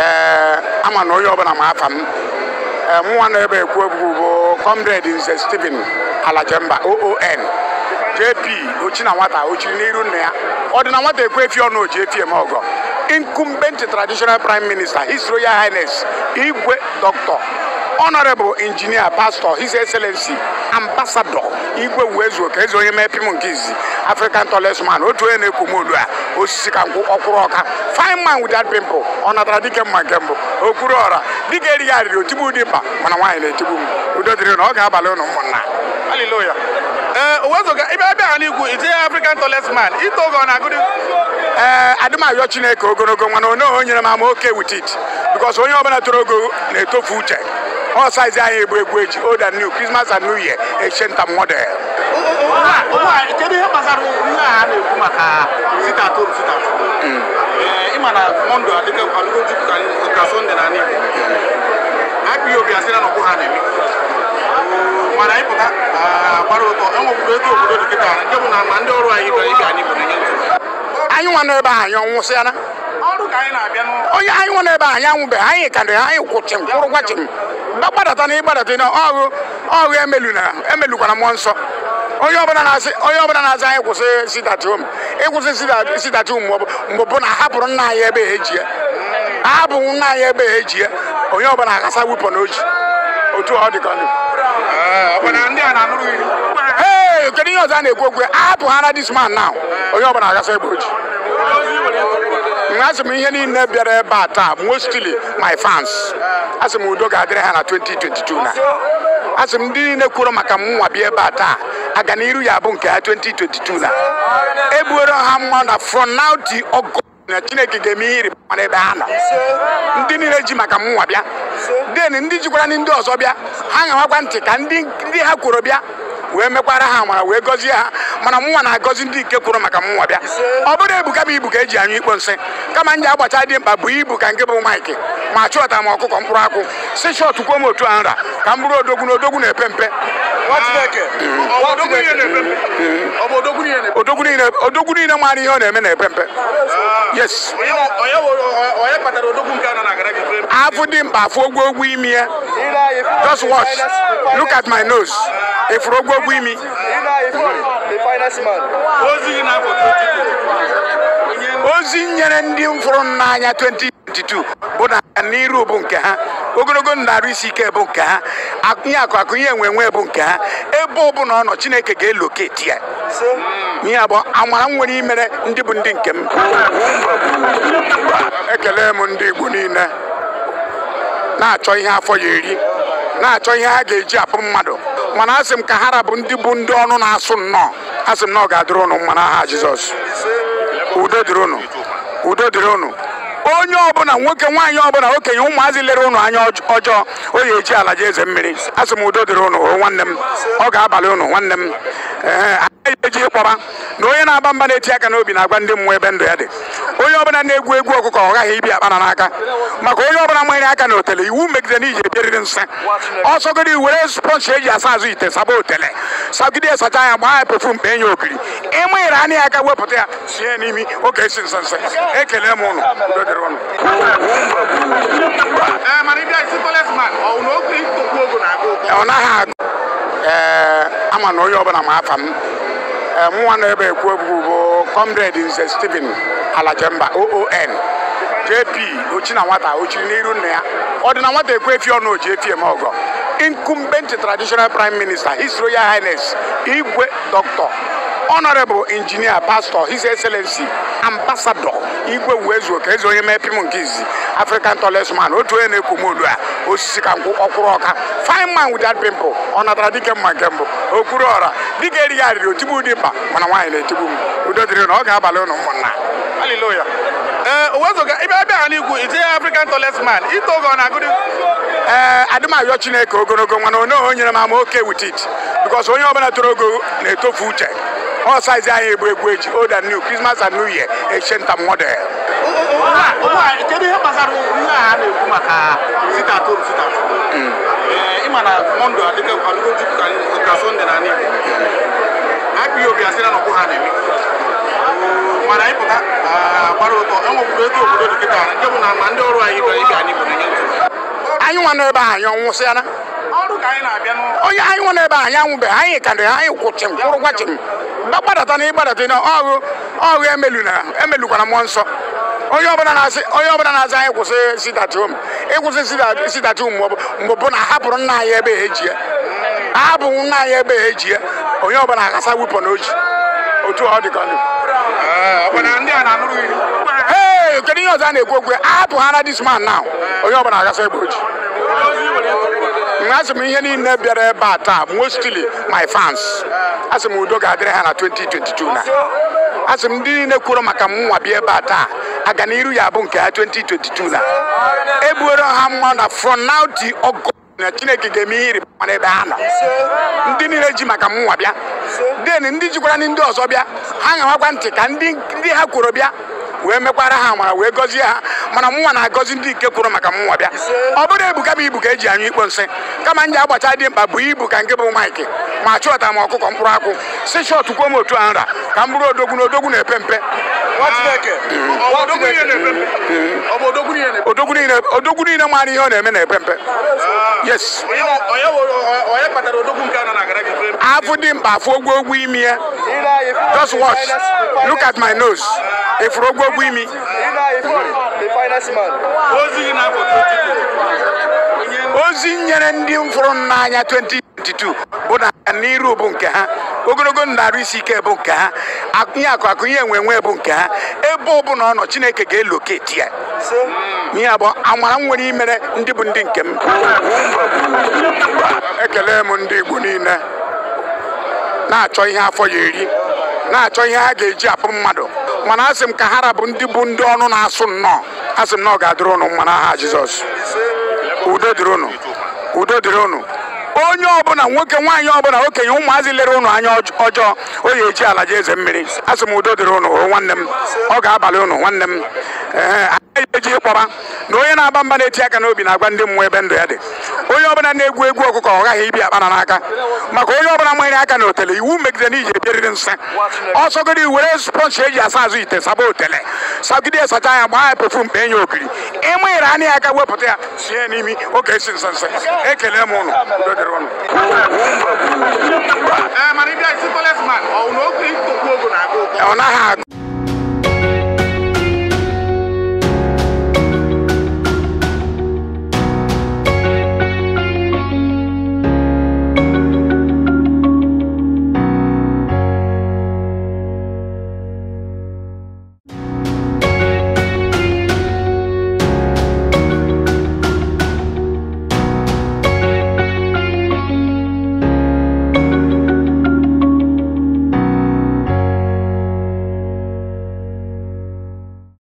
Eh, ama na onye ọbụla ma afa m eh, mụnwa nọ ebe ekwu ebubu bụ comrade nze Stephen Alajemba oon jp ochi na nwata ochiri n'iru nna ya ọ dị na nwata ekwu efi ọnụ oji efi eme ọgọ incumbent traditional prime minister his royal highness igwe dr honorable engineer pastor his excellency ambassador igwe uwezuoka eze onye mepim nke izi african tallest otu onye na-ekwu m olu a osisi ka nkwụ ọkwụrụ ọka fine man without pimple ọ natara dike mma nke mbụ okwuru ọra dike erighị arịrị otigbu ụdị mkpa mana nwaanyị na-etigbu m udo dịrị na ọ ga-abalị ụnụ ụmụnna ha eh, n'ikwu itinye african man ito oge ọ na-agụdị eh, ee chineke ogologo nwana onye nyere m ama oke with it onye ọbụla toro ogo na-etofu uche all sides are egbu egbu echi old and new Christmas and new year echenta model kedu ihe gbasara ihe a na-ekwu maka sit at home sit at home ịma na mọnde adịgo jupụta ka sọnde na n'igbo akpụghị obi asị na nọkwụ ha na-eme mana ịpụta gbara ụtọ enwekwuru ego obodo dịkịta ndị bụ na ma ndị ọrụ anyị bịara ibe anyị bụ na ihe anyị nwa n'ebe ahụ anyị ọnwụsịala onye anyị nwe n'ebe anyị anwụbe anyị karịrị anyị kwụchim kwụrụ gwachim gbadata na ịgbadata na ọghụ ọghụ emelukwara mmụọ nsọ onye ọbụla na-azị anyị kwụsị sidatom ịkwụsị sidatom mgbe bụ na ahapụrụ nna anyị ebe eji ya ahapụrụ nna anyị ebe eji ya onye ọbụla akasa wepụ na oji otu ọ dịka ndụ ee kedu ihe ọzọ a na-ekwu okwu ahapụ ha na dis man now onye ọbụla akasa ebe oji asị m ihe niile bịara ebe a taa mostly my fans asị m udo ga-adịrị ha na 2022 na asị m ndị niile kwuru maka mụnwa bịa ebe a taa aga n'iru ya bụ nke ha 2022 na ebuoro ha mma na from now na chineke ga-eme ihe ịrịba mara ebe ha nọ ndị niile ji maka nwa bịa den ndị jikwara ndị ọzọ bịa ha na ntị ka ndị ha kwuru bịa wee mekwara ha amara wee gọzie ha mana mụnwa na-agọzi ndị nke kwuru maka mụnwa bịa ọ bụrụ ebuka bụ ibu ka eji anyụ ikpo nsị kama m ji agbacha dị mkpa bụ ibu ka nke bụ maịkị ma chụọta m ọkụkọ mkpụrụ akwụ si shọt m otu a nra ka m bụrụ odogwu na odogwu na-epe mpe odogwu niile maara ihe ọ na-eme na-epe mpe yes afụ dị mkpa afụ ogwogwo imi ya eh? just watch look at my nose efuru ogwogwo imi ozi nyere ndị mfụrụ n'anya 2022 bụ na n'iru bụ nke ha ogologo ndụ isi ike bụ nke ha akụnye akụ ihe enwe enwe bụ nke ha ebe ọbụla ọ nọ chineke ga-eloketi ya ihe abụọ amara m nwere imere ndị bụ ndị nke m ekele m ndị igbo niile na-achọ ihe afọ ya eri na-achọ ihe ha ga-eji apụ mmadụ mana asị m ka ha rabụ ndị bụ ndị ọnụ na-asụ nnọọ asị m na ọ ga-adịrị ụnụ mma n'aha Jizọs udo dịrị ụnụ udo dịrị ụnụ onye ọbụla nwoke nwaanyị ọbụla okenye ụmụazị lere ụnụ anya ọjọọ o ya eji ala ji eze mmiri asị m udo dịrị ụnụ nwanne m ọ ga-abalị ụnụ nwanne m ee eji ịkpọba na onye na-agba mba na-eti aka n'obi na-agwa ndị mmụọ ebe ndụ ya dị onye ọbụla na-egwu egwu ọkụkọ ọ gaghị ibi akpana n'aka maka onye ọbụla nwere aka na otele iwu megide na iji ebieriri nsị Ọsọgodi were spọnchi eji asa azụ ite saba otele sagide sacha ya gbaa ya pefum kpee nye okiri ịmụnyere e ya aka wepụta ya sie n'imi oge esi nsị nsị ekele m eh, ụnụ ọ naghị agụ ee eh, ama na onye ọbụla ma afa m Eh, mụnwa na ebe ekwu ebubu bụ comrade nze Stephen Alajemba oon jp ochi na nwata ochiri n'iru nna ya ọ dị na nwata ekwu efi ọnụ oji efi eme ọgọ incumbent traditional prime minister his royal highness igwe dr honorable engineer pastor his excellency ambassador igwe uwezuoka eze onye mepim nke izi african tallest man otu onye na-ekwu m olu a osisi ka nkwụ ọkwụrụ ọka fine man with pimple ọ natara dike mma nke mbụ okwuru ọra dike erighị arịrị otigbu ụdị mkpa mana nwaanyị na-etigbu m udo dịrị na ọ ga-abalị ụnụ ụmụnna haleluya eh, ee owezụga ịbịa abịa ha n'igwu itinye african tallest man ito ogo na agụdị ee eh, adịmayọ chineke ogologo mana onye o nyere m ama oke with bikos onye ọbụla toro ogo na-etofu uche ọ saizi egbu egwu eji new krismas and new year kedu ihe gbasara ihe a na-ekwu maka sitatu sitatu ịma ị ma adịgo jupụta ka na n'igbo akpụghị obi asịra na ha na-eme mana ah, gbara ụtọ ego obodo dị kịta ndị bụ na ma ndị ọrụ anyị bịara ibe anyị bụrụ anyị nwa n'ebe anyị ọnwụsịala onye anyị nwa n'ebe anyị anyị ka dị anyị kwụchim kwụrụ gbadata na ịgbadata emelukwana mmụọ nsọ onye ọbụla na-aza anyị kwụsị sidatum ịkwụsị e sidatum mgbe bụ na ahapụrụ nna anyị ebe eji ya ahapụ nna anyị ebe eji ya onye ọbụla akasa wepọn o ji otu ọ dị ee kedu ihe ọzọ a na-ekwu okwu ahapụ ha na dis man now onye ọbụla akasa egbe o asị m ihe niile bịara ebe a taa mostly my fans asị m udo ga-adịrị ha na 2022 na asị m ndị niile kwuru maka mụnwa bịa ebe a taa aga n'iru ya abụ nke ha 2022 na ebuoro ha mma na from now na chineke ga-eme ihe ịrịba mara ebe ha nọ ndị niile ji maka mụnwa bịa den ndị jikwara ndị ọzọ bịa ha ga ntị ka ndị ha kwuru bịa wee mekwara ha amara wee gọzie ha mana mụnwa na-agọzi ndị nke kwuru maka mụnwa bịa ọ bụrụ ebuka m ibu ka eji anyụ ikpo nsị kama m ji agbacha dị mkpa bụ ibu ka nke bụ maịkị ma chụọta m ọkụkọ mkpụrụ akwụ si shọtụ kwuo m otu a nra ka m bụrụ odogwu na odogwu na-epe mpe odogwu niile maara ihe ọ na-eme na-epe mpe yes afụ dị mkpa afọ ogwogwo imi ya just watch look at my nose efuru ogwogwo imi ozi nyere ndị mfụrụ n'anya 2022 bụ na n'iru bụ nke ha ogologo ndụ isi ike bụ nke ha akụnye akụ akụnye enwe enwe bụ nke ha ebe ọbụla ọ chineke ga-eloketi ya ihe abụọ amara m nwere imere ndị bụ ndị nke m ekele m ndị igbo niile na-achọ ihe afọ ya eri na-achọ ihe ha ga-eji apụ mmadụ mana asị m ka ha rabụ ndị bụ ndị ọnụ na-asụ nnọọ asị m na ọ ga-adịrị ụnụ mma n'aha Jizọs udo dịrị ụnụ udo dịrị ụnụ onye ọbụla nwoke nwaanyị ọbụla okenye ụmụazị lere ụnụ anya ọjọọ o ya eji ala jeze eze mmiri asị m udo dịrị ụnụ nwanne m ọ ga-abalị ụnụ nwanne m eji ịkpọba na onye na-agba mba na-eti aka n'obi na-agwa ndị mmụọ ebe ndụ ya dị onye ọbụla na-egwu egwu ọkụkọ ọ ghaghị ibi akpana n'aka maka onye ọbụla nwere aka na otele iwu megide na iji ebieriri nsị ọsọgide were spọnchi eji asa azụ ite saba otele sagide sacha ya gbaa ya pefum kpee nye okiri ịmụnyere anya ya aka wepụta ya sie n'imi oge esi nsị nsị ekele m eh, ụnụ ọ naghị agụ